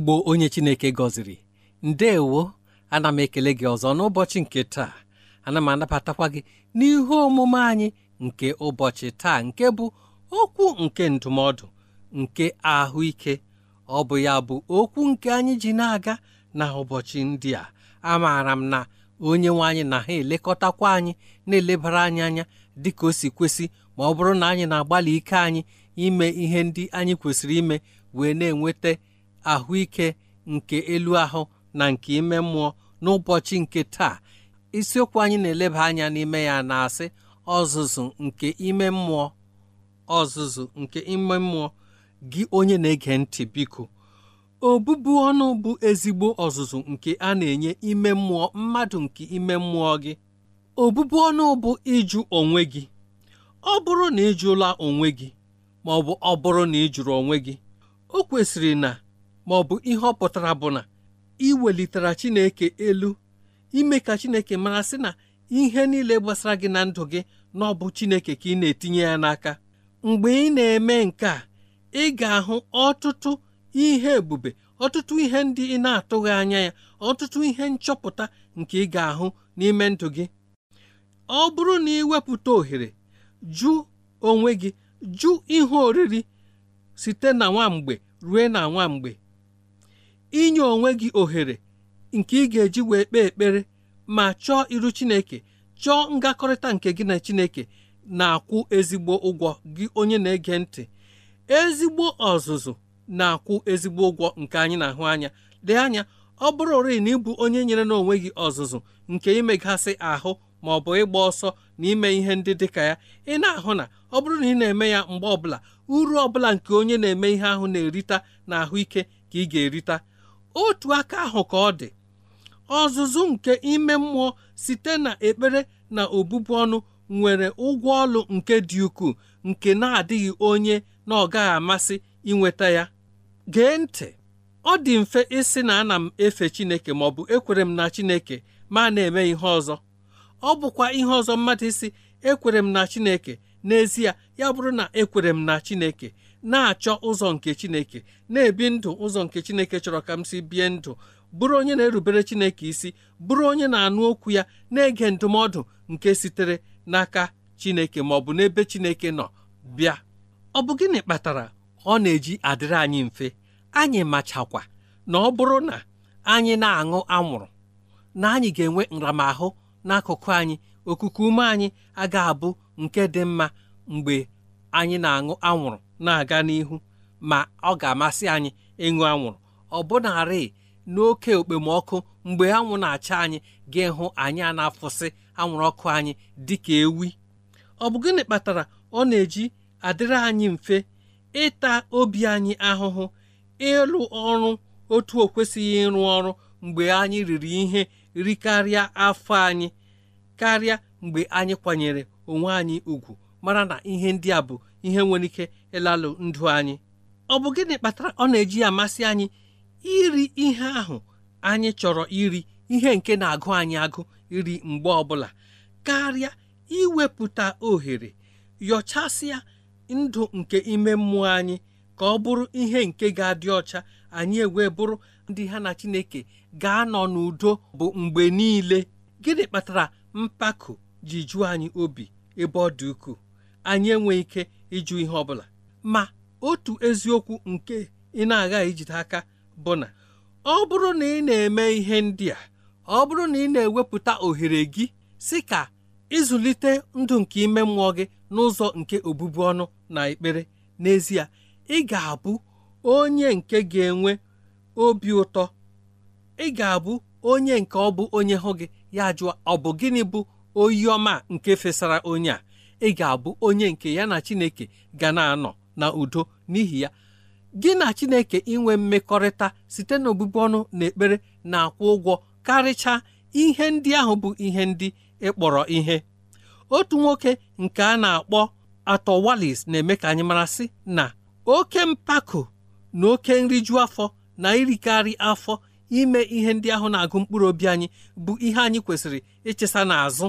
igbo onye chineke gọziri ndeewo ana m ekele gị ọzọ n'ụbọchị nke taa ana m anabatakwa gị n'ihu omume anyị nke ụbọchị taa nke bụ okwu nke ndụmọdụ nke ahụike ọ bụ ya bụ okwu nke anyị ji na-aga na ụbọchị ndị a amaara m na onye nwe anyị na ha elekọtakwa anyị na-elebara anyị anya dị ka o si kwesị ma ọ bụrụ na anyị na-agbalị ike anyị ime ihe ndị anyị kwesịrị ime wee na-enweta ahụike nke elu ahụ na nke ime mmụọ n'ụbọchị nke taa isiokwu anyị na-eleba anya n'ime ya na-asị ọzụzụ nke ime mmụọ ọzụzụ nke ime mmụọ gị onye na-ege ntị biko obụbụ ọnụ bụ ezigbo ọzụzụ nke a na-enye ime mmụọ mmadụ nke ime mmụọ gị obụbụ ọnụ bụ ịjụ onwe gị ọ bụrụ na ịjụla onwe gị ma ọ bụ ọ bụrụ na ịjụrụ onwe gị o kwesịrị na ma ọ bụ ihe ọ pụtara bụ na ị welitere Chineke elu ime ka Chineke mara sị na ihe niile gbasara gị na ndụ gị na ọ bụ Chineke ka ị na-etinye ya n'aka mgbe ị na-eme nke a ị ga-ahụ ọtụtụ ihe ebube ọtụtụ ihe ndị ị na-atụghị anya ya ọtụtụ ihe nchọpụta nke ị ga-ahụ n'ime ndụ gị ọ bụrụ na ị wepụta ohere jụ onwe gị jụ ihe oriri site na nwamgbe rue na nwamgbe inye onwe gị ohere nke ị ga-eji wee kpee ekpere ma chọọ iru Chineke chọọ ngakọrịta nke gị na Chineke na-akwụ ezigbo ụgwọ gị onye na-ege ntị ezigbo ọzụzụ na-akwụ ezigbo ụgwọ nke anyị na-ahụ anya dị anya ọ bụrụ bụrụrị na ịbụ onye nyere onwe gị ọzụzụ nke imegasị ahụ ma ọ bụ ịgba ọsọ na ime ihe ndị dị ka ya ị na-ahụ na ọ bụrụ na ị na-eme ya mgbe ọbụla uru ọbụla nke onye na-eme ihe ahụ na-erita na ahụike ka ị ga-erita otu aka ahụ ka ọ dị ọzụzụ nke ime mmụọ site na ekpere na obụbụ ọnụ nwere ụgwọ ọlụ nke dị ukwuu nke na-adịghị onye na ọ gaghị amasị inweta ya gee ntị ọ dị mfe ịsị na ana m efe Chineke ma ọ bụ ekwere m na Chineke ma na-eme ihe ọzọ ọ bụkwa ihe ọzọ mmadụ isi ekwere m na Chineke n'ezie ya bụrụ na ekwere m na Chineke na-achọ ụzọ nke Chineke na-ebi ndụ ụzọ nke Chineke chọrọ ka m si bie ndụ bụrụ onye na-erubere Chineke isi bụrụ onye na-anụ okwu ya na-ege ndụmọdụ nke sitere n'aka Chineke ma ọ bụ n'ebe Chineke nọ bịa ọ bụ gịnị kpatara ọ na-eji adịrị anyị mfe anyị machakwa na ọ bụrụ na anyị na-aṅụ anwụrụ na anyị ga-enwe nramahụ n'akụkụ anyị okuku ume anyị agaghị abụ nke dị mma mgbe anyị na-aṅụ anwụrụ na-aga n'ihu ma ọ ga-amasị anyị ịṅụ anwụrụ ọbụnarị n'oke okpomọkụ mgbe anwụ na-acha anyị ga-ịhụ anyị a na-afụsị anwụrụ ọkụ anyị dịka ewi ọ bụ gịnị kpatara ọ na-eji adịrị anyị mfe ịta obi anyị ahụhụ ịlụ ọrụ otu o kwesịghị ịrụ ọrụ mgbe anyị riri ihe rikarịa afọ anyị karịa mgbe anyị kwanyere onwe anyị ugwu mara na ihe ndị a bụ ihe nwere ike ịlalụ ndụ anyị ọ bụ gịnị kpatara ọ na-eji amasị anyị iri ihe ahụ anyị chọrọ iri ihe nke na-agụ anyị agụ iri mgbe ọbụla karịa iwepụta ohere yọchasịa ndụ nke ime mmụọ anyị ka ọ bụrụ ihe nke ga-adị ọcha anyị ewee bụrụ ndị ha na Chineke ga-anọ n'udo bụ mgbe niile gịnị kpatara mpako ji jụọ anyị obi ebe ọ dị ukwuu anyị enweghị ike ịjụ ihe ọbụla ma otu eziokwu nke ị na-aghaghị ijide aka bụ na ọ bụrụ na ị na-eme ihe ndị a ọ bụrụ na ị na-ewepụta ohere gị si ka ịzụlite ndụ nke ime mmụọ gị n'ụzọ nke obụbu ọnụ na ekpere n'ezie ị ga-abụ onye nke ga-enwe obi ụtọ ị ga-abụ onye nke ọ bụ onye hụ gị ya jụọ ọ bụ gịnị bụ oyi ọma nke fesara onye a ị ga-abụ onye nke ya na Chineke ga na-anọ na udo n'ihi ya gị na Chineke inwe mmekọrịta site n'obụbụ ọnụ na ekpere na-akwụ ụgwọ karịcha ihe ndị ahụ bụ ihe ndị ịkpọrọ e ihe otu nwoke nke a na-akpọ atọ Wallis na-eme ka anyị mara sị na oke mpako na oke nriju afọ na irikarị afọ ime ihe ndị ahụ na-agụ mkpụrụ obi anyị bụ ihe anyị kwesịrị ịchịsa n'azụ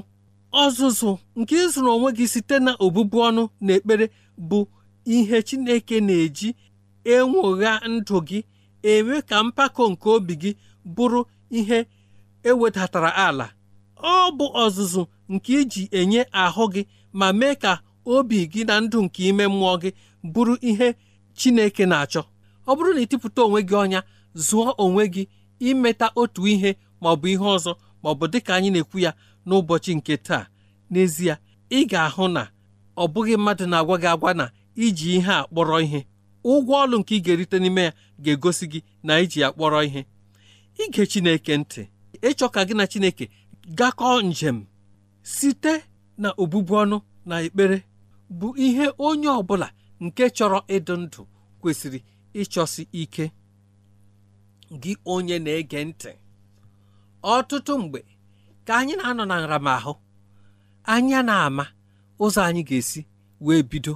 ọzụzụ nke ịzụrụ onwe gị site na ọnụ na ekpere bụ ihe Chineke na-eji enwogha ndụ gị eme ka mpako nke obi gị bụrụ ihe ewedatara ala ọ bụ ọzụzụ nke iji enye ahụ gị ma mee ka obi gị na ndụ nke ime mmụọ gị bụrụ ihe Chineke na-achọ ọ bụrụ na ịtịpụta onwe gị ọnya zụọ onwe gị imeta otu ihe maọbụ ihe ọzọ maọbụ dịka anyị na-ekwu ya n'ụbọchị nke taa n'ezie ị ga-ahụ na ọ bụghị mmadụ na-agwa gị agwa na iji ihe a kpọrọ ihe ụgwọ ọlụ nke ị ga-erite n'ime ya ga-egosi gị na iji ya kpọrọ ihe ige Chineke ntị ịchọ ka gị na Chineke gakọọ njem site na obụbu ọnụ na ekpere bụ ihe onye ọ bụla nke chọrọ ịdụ ndụ kwesịrị ịchọsi ike gị onye na-ege ntị ọtụtụ mgbe ka anyị na-anọ na nramahụ anyị na-ama ụzọ anyị ga-esi wee bido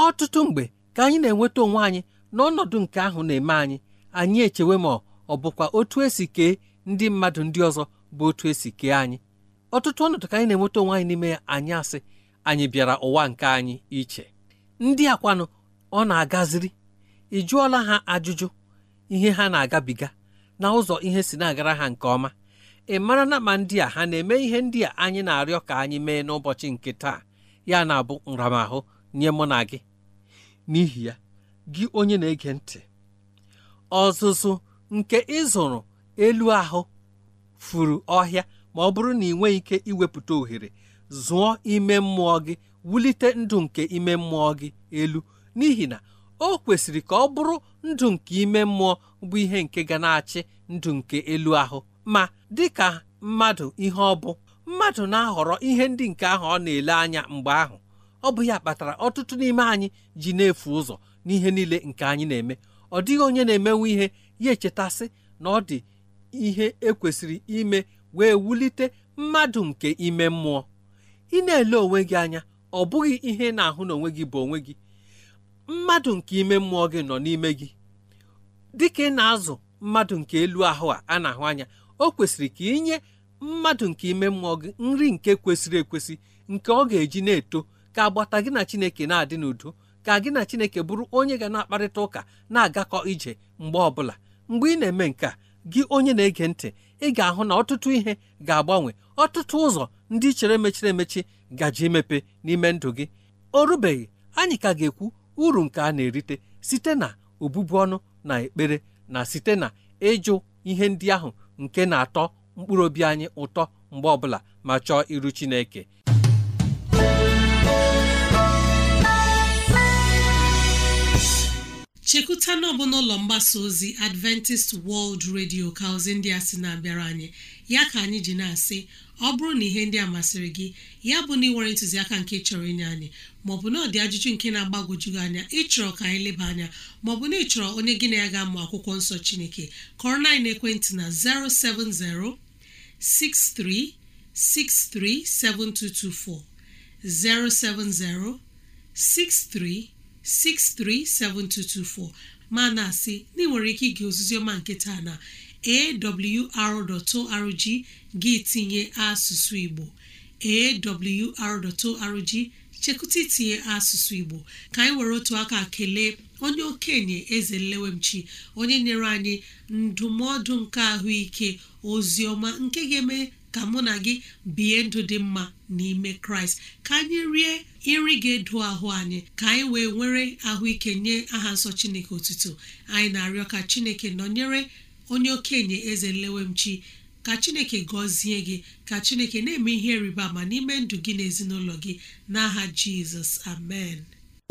ọtụtụ mgbe ka anyị na-enweta onwe anyị n'ọnọdụ nke ahụ na-eme anyị anyị echewe ma ọ bụkwa otu esi kee ndị mmadụ ndị ọzọ bụ otu esi kee anyị ọtụtụ ọnọdụ ka anyị na-enweta onwe anyị n'ime ya anyị asị anyị bịara ụwa nke anyị iche ndị akwanụ ọ na-agaziri ị jụọla ha ajụjụ ihe ha na-agabiga na ụzọ ihe si na-agara ha nke ọma ị mara na ma ndị a ha na-eme ihe ndị a anyị na-arịọ ka anyị mee n'ụbọchị nke taa ya na-abụ nramahụ nye mụ na gị n'ihi ya gị onye na-ege ntị ọzụzụ nke ịzụrụ elu ahụ furu ọhịa ma ọ bụrụ na ị nweghị ike iwepụta ohere zụọ ime mmụọ gị wulite ndụ nke ime mmụọ gị elu n'ihi na o kwesịrị ka ọ bụrụ ndụ nke ime mmụọ bụ ihe nke ga na-achị ndụ nke elu ahụ ma dịka mmadụ ihe ọ bụ mmadụ na-ahọrọ ihe ndị nke ahụ ọ na-ele anya mgbe ahụ ọ bụ ya kpatara ọtụtụ n'ime anyị ji na-efu ụzọ n'ihe niile nke anyị na-eme ọ dịghị onye na-emenwe ihe ya echetasị na ọ dị ihe ekwesịrị ime wee wulite mmadụ nke ime mmụọ ị na-ele onwe gị anya ọ bụghị ihe ị na-ahụ n'onwe gị bụ onwe gị mmadụ nke ime mmụọ gị nọ n'ime gị dịka ị na-azụ mmadụ nke elu ahụ a a na-ahụ anya o kwesịrị ka inye mmadụ nke ime mmụọ gị nri nke kwesịrị ekwesị nke ọ ga-eji na-eto ka agbata gị na chineke na-adị n'udo ka gị na chineke bụrụ onye ga na-akparịta ụka na-agakọ ije mgbe ọbụla mgbe ị na-eme nke a gị onye na-ege ntị ị ga-ahụ na ọtụtụ ihe ga-agbanwe ọtụtụ ụzọ ndị chere mechiri emechi gaji imepe n'ime ndụ gị o rubeghị anyị ka ga-ekwu uru nke a na-erite site na obubu ọnụ na ekpere na site na ịjụ ihe ndị ahụ nke na-atọ mkpụrụ obi anyị ụtọ mgbe ọbụla ma chọọ iru Chineke chekwuta na ọbụ n'ụlọ mgbasa ozi adventist world radio ka ozi ndị a sị na-abịara anyị ya ka anyị ji na-asị ọ bụrụ na ihe ndị a masịrị gị ya bụ na ịnwere ntụziaka nke chọrọ inye anyị maọbụ na ọ dị ajụjụ nke na-agbagwojughị anya ịchọrọ ka anyị leba anya maọbụ na ịchọrọ onye gị na ya ga-amụ akwụkwọ nsọ chineke kọrọ na ekwentị na 070 6363 7224 070 63 637224 ma na-asị na nwere ike ige ozizioma nke taa na awr.org gị tinye asụsụ Igbo awr.org chekụta itinye asụsụ Igbo ka anyị were otu aka kelee onye okenye eze nlewemchi onye nyere anyị ndụmọdụ nke ahụike oziọma nke ga-eme ka mụ na gị bie ndụ dị mma n'ime kraịst ka anyị rie nri ga-edu ahụ anyị ka anyị wee nwere ahụike nye aha nsọ chineke otuto anyị na-arịọ ka chineke nọnyere onye okenye eze nlewemchi ka chineke gọzie gị ka chineke na-eme ihe rịba ma n'ime ndụ gị na gị n'aha jizọs amen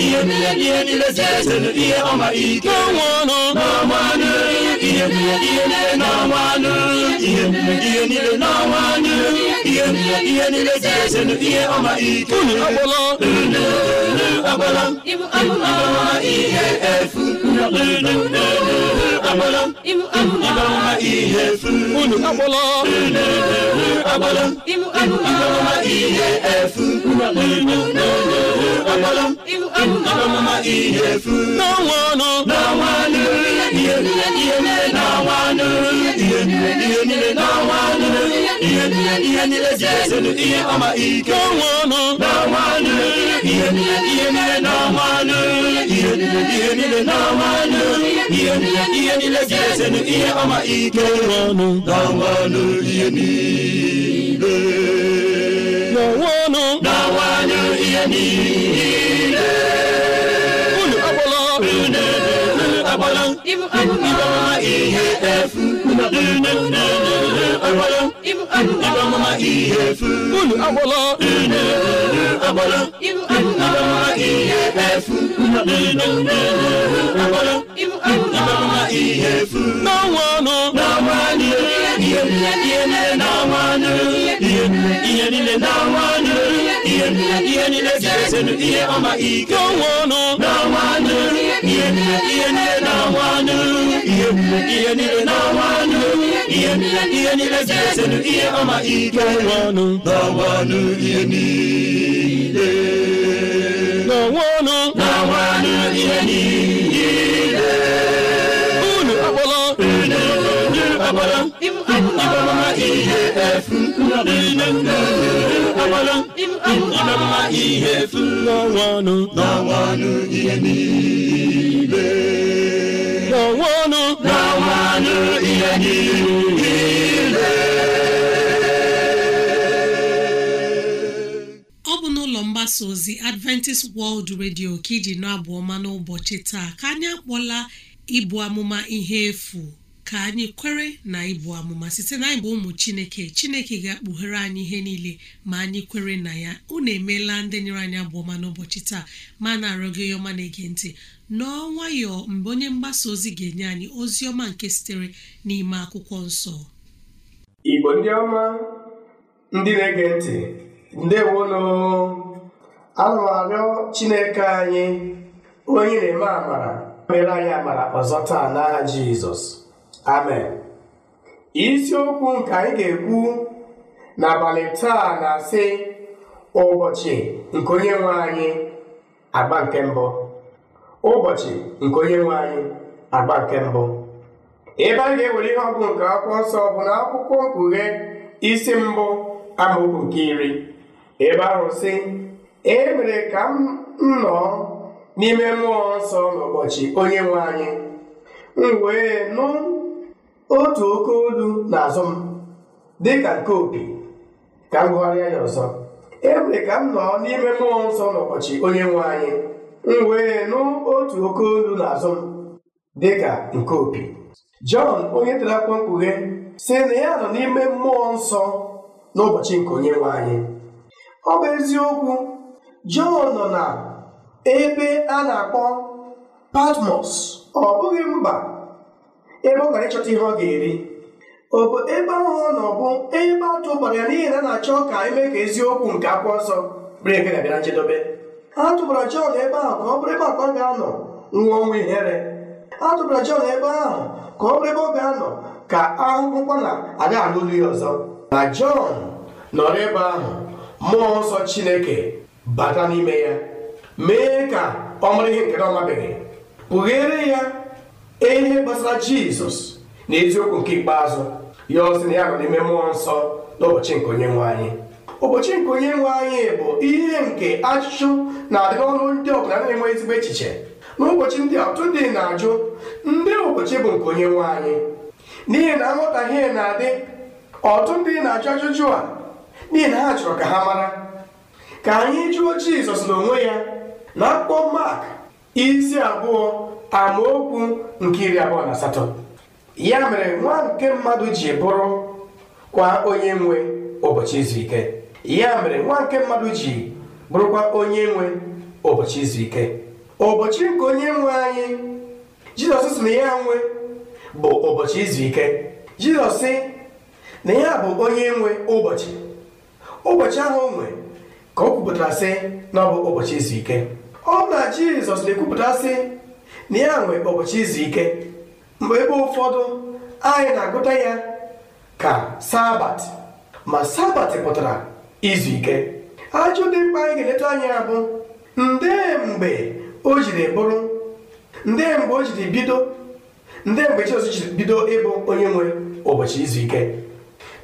ihe niile ihe niile si eselu ihe ọma ike n'ọnwanụ n'ọnwanụ ihe niile ihe niile n'ọnwanụ ihe niile ihe niile n'ọnwanụ ihe niile ihe niile si eselu ihe ọma ike unu agbala unu agbala ibu ihe efu unu agbala ịbara ihe efu unu agbala agbala ịbara ihe efu unu efu ihe ihe niile ihe niile ihe niile ga-ezenụ ihe ọma ike ọnụ na nwanụ ihe niile na nwanụ ihe niile agbala ihe efu ihe efu unu agbala agbala ihe efu agbala ibe ọmụma ihe efu n'ọnwa ọnụ n'ọnwa ọnụ ihe niile n'ọnwa ọnụ ihe niile n'ọnwa ọnụ ihe ihe ọma ike n'ọnwa ọnụ n'ọnwa ihe niile niile na-anwụ ihe ihe niile na anụ ihe ihe niile si esenu ihe ọma ike n'ọnụ n'ọnwụ anụ ihe niile n'ọnwụ ọnụ n'ọnwụ anụ ihe niile unu akpọrọ unu akpọrọ ọ bụ n'ụlọ mgbasa ozi Adventist World Radio ka iji nọ abụ ọma n'ụbọchị taa ka anyị akpọla ibu amụma ihe efu ka anyị kwere na ịbụ amụma site na anyị bụ ụmụ chineke chineke ga-akpughere anyị ihe niile ma anyị kwere na ya unu emeela ndị nyere anyị ọma n'ụbọchị taa ma na-arịọ gị ọma na-ege ntị nọọ nwayọọ mgbe onye mgbasa ozi ga-enye anyị ozi ọma nke sitere n'ime akwụkwọ nsọ igbo ndị ọma ndị na-ege ntị arịọ chineke anyị onye na-eme amara mere anyị amara ọzọ taa jizọs amen isiokwu nke anyị ga-ekwu n'abalị taa na-asị ụbọchị nke onye nwe anyị agba nke mbụ ụbọchị nke onye nwe anyị agba nke mbụ ebe anyị ga-ewere ihe ọgwụ nke akwụkwọ nsọ bụ na akwụkwọ mkpughe isi mbụ amaokwu nke iri ebe ahụ sị e mere ka m nọọ n'ime mmụọ nsọ n'ụbọchị onye nwe anyị m wee nụ otu oke olu n'azụ m dịka nke opi ka m gụgharịa ya ọzọ emere ka m nọ n'ime mmụọ nsọ n'ụbọchị onye nwe anyị m wee nụ otu oke olu n'azụ m dịka nke opi jọn onye tere akwụkwọ mkpughe si na ya nọ n'ime mmụọ nsọ n'ụbọchị nke onye nwe anyị ọ bụ eziokwu jọn nọ na ebe a na-akpọ patmos ọ bụghị mba ebe ọ gara ịchọta ihe ọ ga-eri obodo ebe ahụhụ na ọ bụ ebe atụ gbara ya n'ihi na a na-achọ ka eme ka eziokwu nke akwụkwọ nsọ bụrụ eke ga-abịa nchedobe a tụbara Jọn ebe ahụ ka ọ bụrụ ebe akwa ga-anọ nwụọ ọnwụ ihere a Jọn ebe ahụ ka ọ bụrụ ebe ọ ga-anọ ka ahụhụkwa na aga alụlu ya ọzọ na Jọn nọrọ ebe ahụ mmụọ nsọ Chineke bata n'ime ya mee ka ọ mara ihe nke na ọ mabeghị kpughere ya ee ihe gbasara jizọs na eziokwu nke ikpeazụ ya ọsị na ya nọ n'ime mmụọ nsọ n'ụbọchị nke onye nwe anyị ụbọchị nke onye nwe anyị bụ ihe nke achụchụ na-adị n'ọnụ ndị ọbụla na-enwe ezigbo echiche n'ụbọchị ndị a ọtụtụ ndị na-ajụ ndị ụbọchị bụ nke onye nwe anyị n'ihi na nghọtahie na-adị ọtụtụ ndị na-ajụ ajụjụ a n'ihi na ha chọrọ ka ha mara ka anyị jụọ jizọs n'onwe ya na akpụkpọ mak isi abụọ amaokwu nke iri abụọ na asatọ ya mere nwa nke mmadụ ji bụrụ kwa onye nwe ụbọchị izu ike ya mere nwa nke mmadụ ji bụrụkwa onye nwe ụbọchị izu ike ụbọchị nke onye nwe anyị jizọs sị na ya nwe bụ ụbọchị izu ike jizọs sị na ya bụ onye nwe ụbọchị ụbọchị ahụ onwe nwe ka o kwupụtara si na ọ bụ ụbọchị izu ike ọ na jizọs na-ekwupụta sị na ya nwe ụbọchị izu ike mgbe ebe ụfọdụ anyị na-agụta ya ka sabat ma sabat pụtara izu ike ajụ dị mkpa anyị ga-eleta anya bụ nde mgbe o jiri bụrụ nde mgbe o jiri bido nde mgbe jiri bido ịbụ onye nwe ụbọchị izu ike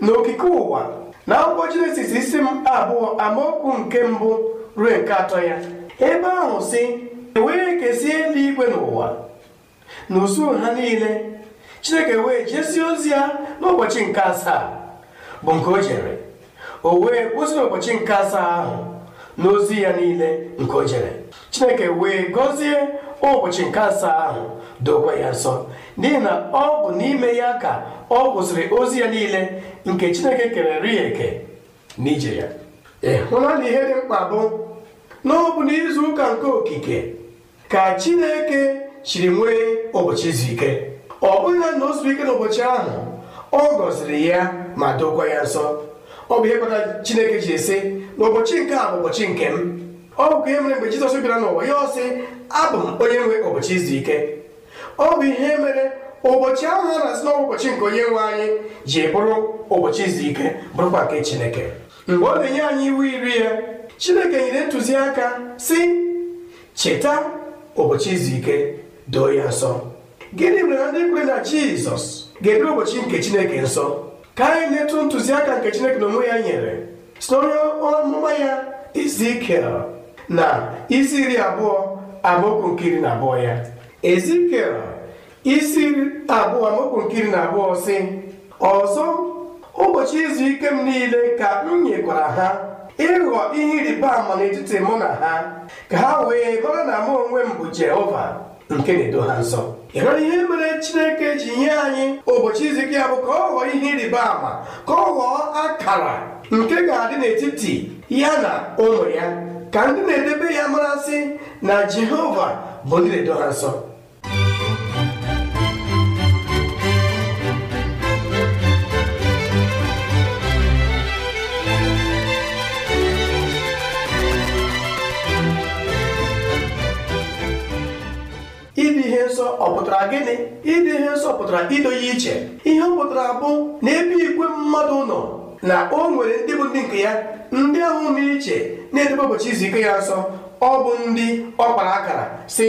n'okike ụwa na akwụkwọ Jenesis isi m abụọ amaokwu nke mbụ ruo nke atọ ya ebe ahụ si e wee kesie eluigwe n'ụwa na usuu ha niile chineke wee jesie ozi ya n'ụbọchị nke asaa bụ nke o jere o wee kwụsị n'ụbọchị nke asaa ahụ n'ozi ya niile nke o jere chineke wee gọzie ụbọchị nke asaa ahụ dokwa ya nsọ n'ihi na ọ bụ n'ime ya ka ọ kwụsịrị ozi ya niile nke chineke kerere ya eke n'ije ya ịhụla na ihe dị mkpa bụ na ọ n'izu ụka nke okike ka Chineke chiri nwee ụbọchị izu ike ọ bụghị na o zuru ike n'ụbọchị ahụ ọ gọziri ya ma dokwa ya nsọ ọ bụ ihe kpatara Chineke ji esi na ụbọchị nke a bụ ụbọchị nke m ọ bụkwa ihe mere mgbe Jizọs bịara n'ụwa ya ọsị, sị abụ m onye nwe ụbọchị izu ike ọ bụ ihe mere ụbọchị ahụ a na-asị n'ọnwa ụbọchị nke onye nwe anyị ji bụrụ ụbọchị izu ike bụrụkwa nke Chineke mgbe ọ na-enye anyị iwu iri ya Chineke nyere ntụziaka si cheta ụbọchị izu ike doo ya nsọ gịnị mere ndị kwe na jizọs ga-edobe ụbọchị nke chineke nsọ ka anyị na-etu ntụziaka nke chineke na onwe ya nyere si n'onye ọmụma ya izu na isi iri abụọ amaokwu na abụọ ya ezikiel isi abụọ amaokwu na abụọ si ọzọ ụbọchị izu ike m niile ka m nyekwara ha ịghọ ihe ịrịba ama n'etiti mụ na ha ka ha wee mara na mụ onwe m bụ Jehova nke na-edo ha nsọ ịmara ihe mere Chineke ji nye anyị ụbọchị izu ya bụ ka ọ ghọọ ihe ịrịba ama ka ọ ghọọ akara nke ga-adị n'etiti ya na ụmụ ya ka ndị na-edebe ya marasị na Jehova bụ ndị na-edo nsọ ọ pụtara gịnị ịdị ihe nsọ pụtara ido iche ihe ọ pụtara bụ na ebe igwe mmadụ nọ na o nwere ndị bụ ndị nke ya ndị ahụ na iche na-edebe ụbọchị izu ike ya nsọ ọ bụ ndị ọ kpara akara si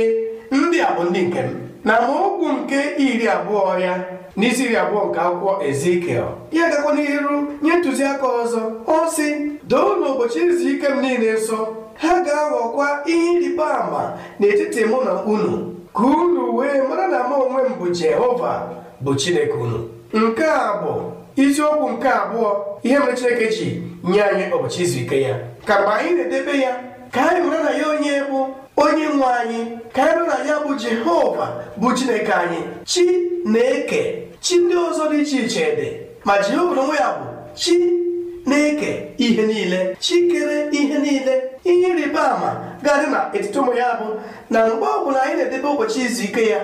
ndị a bụ ndị nke m na amaokwu nke iri abụọ ya n'isi iri abụọ nke akwụkwọ ezikiel ya gakwa n'iru nye ntụziaka ọzọ ọ sị doo n'ụbọchị izu ike m niile nsọ ha ga-aghọkwa ihe ịrịba ama n'etiti mụ na unu ka unu wee mara na m onwe m bụ jehova bụ chineke unu nke a bụ isiokwu nke abụọ ihe mere chineke ji nye anyị ụbọchị izu ike ya ka mgbe anyị na-edebe ya ka anyị mara na ya onye bụ onye nwe anyị ka anyị mara na ya bụ jehova bụ chineke anyị chi na-eke chi ndị ọzọ dị iche iche dị ma jehova onwe ya bụ chi na-eke ihe niile chikere ihe niile ihe ịrịba ama ga-adị na etiti ụmụ ya bụ na mgbe ọ bụla anyị na-edebe ụbọchị izu ike ya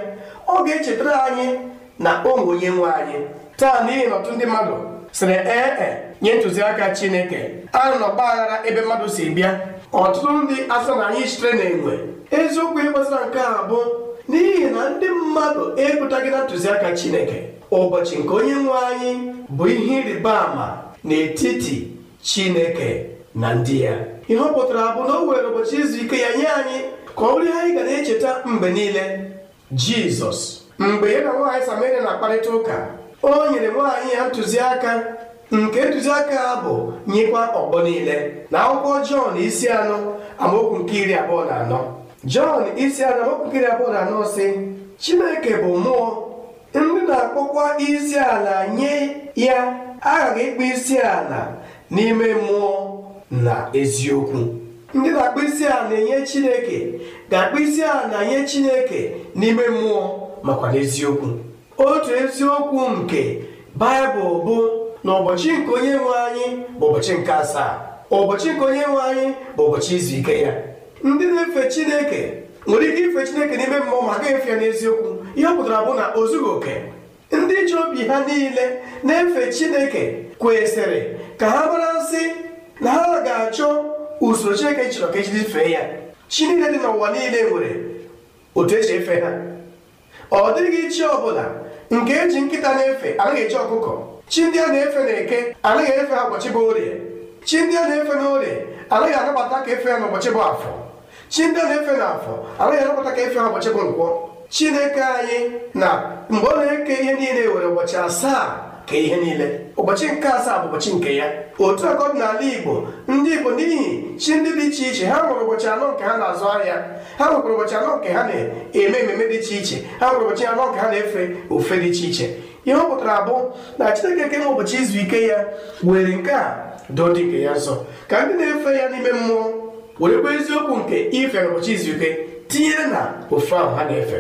ọ ga-echetara anyị na ụmụ onye nwe anyị taa n'ihi na ọtụ ndị mmadụ sịrị ee e, nye ntụziaka chineke a nọ n'ọgbaghara ebe mmadụ si bịa ọtụtụ ndị asọ na anyị sitere na enwe eziokwu ịkpasara nke a bụ n'ihi na ndị mmadụ ekwutaghị na ntụziaka chineke ụbọchị nke onye nwe anyị bụ ihe ịrịba ama n'etiti chineke na ndị ya ihe ọ pụtara bụ na o were ụbọchị izu ike ya nye anyị ka ọ bụrụ ihe anyị ga na-echeta mgbe niile jizọs mgbe ya na nwaanyị samaria na-akparịta ụka o nyere nwaanyị ya ntụziaka nke ntụziaka ha bụ nyekwa ọgbọ niile na akwụkwọ jọn isi anọ amaokwu nke iri abụọ na anọ jọn isi anọ amaokwu nke iri abụọ na anọ si chineke bụ mmụọ ndị na-akpọkwa isi ala nye ya aghaghị ịkpọ isi ala n'ime mmụọ na eziokwu ndị na-akpọ isi ala na-enye chineke ga-akpọ isi ala na-enye chineke n'ime mmụọ makwa n'eziokwu otu eziokwu nke baịbụl bụ na ụbọchị nke onye nwe anyị bụ ụbọchị nke asaa ụbọchị nke onye nwe anyị bụ ụbọchị izu ike ya ndị na-efe chineke nwere ike ife chineke n'ime mmụọ ma agaghị efe ya n'eziokwu ihe ọ pụtara bụ na o oke ndị ji obi ha niile na-efe chineke kwesịrị ka ha mara nsị na ha ga-achọ usoro chineke chọrọ ka ejiri fee ya chi niile dị n'ụwa niile nwere otu eji efe ha ọ dịghị chi ọbụla nke eji nkịta na-efe anaghị eji ọkụkọ chi ndị a na-efe na-eke anaghị efe ha ụbọchị bụ orie chi ndị a na-efe na orie anaghị anabata ka efe ya n'ụbọchị bụ afọ chi ndị a na-efe na afọ anaghị anabata ka efe ha ụbọchị bụ nkwọ chineke anyị na mgbe ọ na-eke ihe niile e were ụbọchị asaa ka ihe niile ụbọchị nke asaa bụ ụbọchị nke ya otu aka n'ala igbo ndị igbo n'ihi chi ndị dị iche iche ha nwere ụbọchị anọ nke ha na-azụ ahịa ha nwekwara ụbọchị anọ nke ha na-eme ememe dị iche iche ha nwere ụbọchị anọ nke ha na-efe ofe dị iche iche ihe ọ pụtara abụ na chineke kenwe ụbọchị izu ike ya were nke a doo dị nke ya nsọ ka ndị na-efe ya n'ime mmụọ werekwa eziokwu nke ife ụbọchị izu ike tinyere na ofe ahụ ha na-efe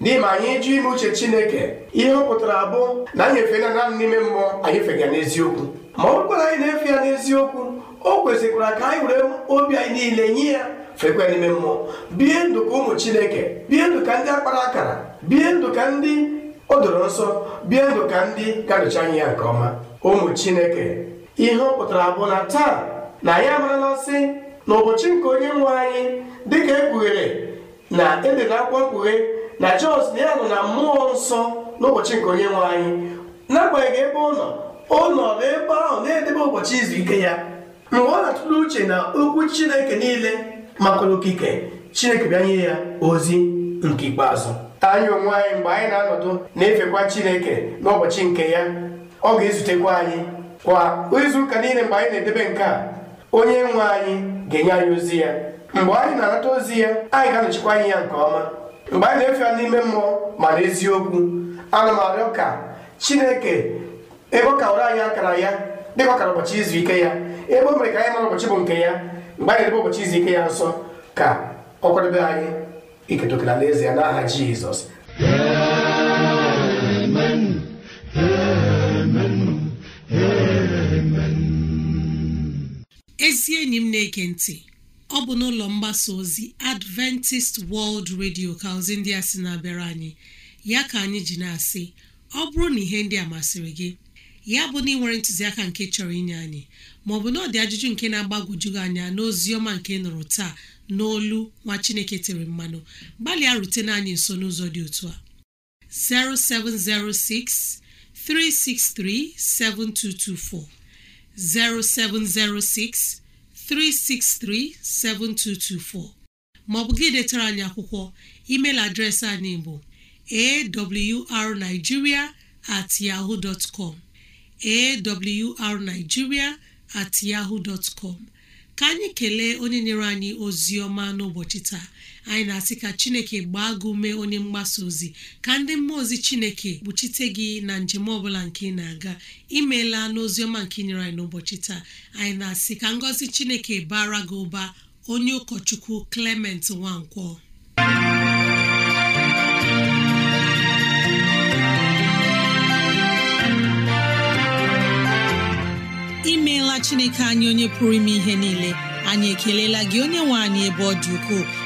n'ime ma anyị jụ ime uche chineke ihe ọ pụtara bụ na anyị efela naanị n'ime mmụọ anyị fega n'eziokwu ma ọ bụkwara anyị na-efe ya n'eziokwu o kwesịkwara ka anyị were obi anyị niile nye ya fekwa n'ime mmụọ bie ndụ ka ụmụ chineke bie ndụ ka ndị akpara akara bie ndụ ka ndị o doro nsọ bie ndụ ka ndị gadochi anyị ya nke ọma ụmụ chineke ihe ọ pụtara bụ na taa na anyị amarala sị na ụbọchị nke onye nwe anyị dịka ekpughere na ede na akwụkwọ mkpughe na Jos na ya nọ na mmụọ nsọ n'ụbọchị nke onye nwe anyị n'agbanyeghị ebe ọ nọ ọ nọ n'ebe ahụ na-edebe ụbọchị izu ike ya mgbe ọ na-atụle uche na okwu Chineke niile maka okike Chineke bịa nye ya ozi nke ikpeazụ anyị onwe anyị mgbe anyị na-anọdụ na-efekwa Chineke n'ụbọchị nke ya ọ ga-ezutekwa anyị kwa izu ụka niile mgbe anyị na-edebe nke a onye nwe anyị ga-enye anyị ozi ya mgbe anyị na-anata ozi ya anyị ga-anọchikwa anyị ya nke ọma mgbe anyị na-efe n'ime mmụọ maara eziokwu anụmanụ m arịọ chineke ebe ọ ụra anyị akara ya dịka ọkara ụbọchị izu ike ya ebe o mere ka anyị mara ụbọchị bụ nke ya mgbe anyị na-ebe ụbọchị izu ike ya nso ka ọ kwadebe anyị iketa okere ya n'aha jizọs ezi enyi m na eke ntị ọ bụ n'ụlọ mgbasa ozi adventist world radio ka ozi ndị a sị na-abịara anyị ya ka anyị ji na-asị ọ bụrụ na ihe ndị a masịrị gị ya bụ na ị nwere ntụziaka nke chọrọ inye anyị maọbụ na ọ dị ajụjụ nke na agbagojugị anya n'ozi ọma nke nụrụ taa n'olu nwa chineke tere mmanụ gbalịa rutena anyị nso n'ụzọ dị otu a 0706 363 7224 0706 363-7224 maọbụ gị detara anyị akwụkwọ email adreesị anyị bụ awrnigeria at yahoo dot com at yahoo dot com ka anyị kelee onye nyere anyị ozi ọma n'ụbọchị taa anyị na-asị ka chineke gbaa gị ume onye mgbasa ozi ka ndị mmụọ ozi chineke kpuchite gị na njem ọbụla nke ị na-aga imeela n'oziọma nke nyere anyị n'ụbọchị taa anyị na-asị ka ngọzi chineke bara gị ụba onye ụkọchukwu klement Nwankwọ imeela chineke anyị onye pụrụ ime ihe niile anyị ekelela gị onye nwe anyị ebe ọ dị ukwuu